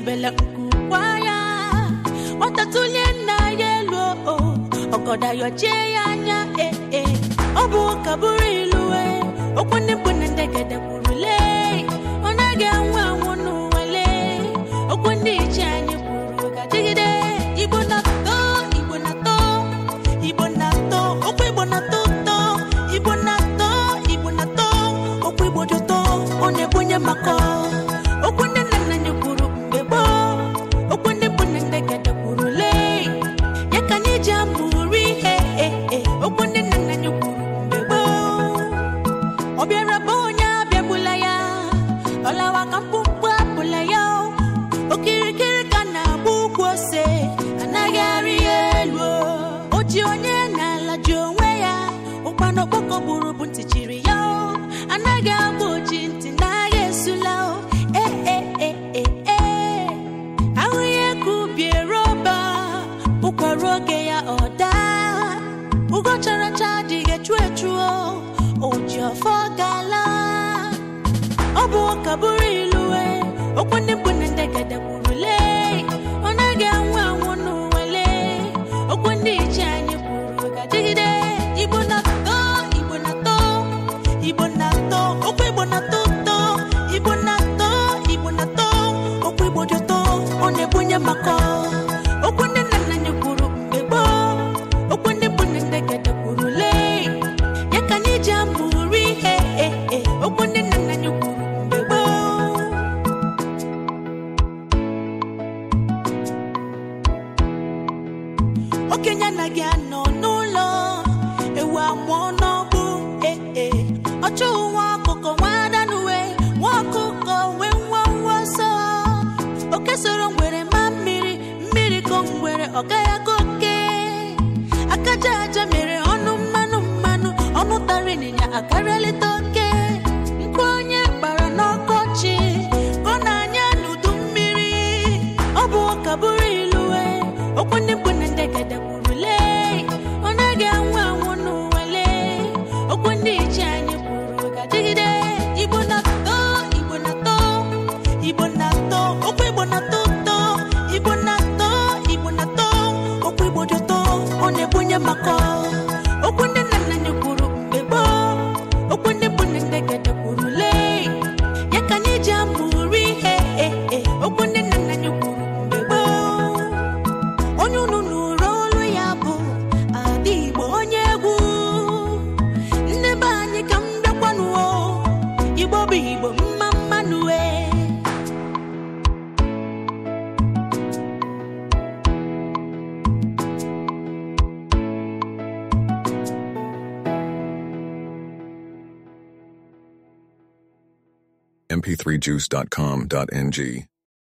ebela nkukwa ya onye nna ya elu ọgọdayọchie ya anya ee eh, eh. ọ bụ ụka bụrụ ilu eh. okwu ndị mkpụrụ bụ ntị chiri ya anaghị agba oji ntị n'agha esula eeeee e, e, e, ahụ ihe ka bụkwara oge ya ọ daa ugo chara cha adịghị echu echuo oji ọfọ gala ọ bụ ụka bụrụ ilue okwu ndị mkpu igbo dị ụtọ ọ na-ebunye maka okwu ndị nna nna anyị kwuru mgbe gboo okwu ndị bụ nne nne gede kwuru lee ya ka anyị ji amụrụ ihe okwu ndị nna nna anyị kwuru mgbe gboo okenye anaghị anọ mp3juice.com.ng.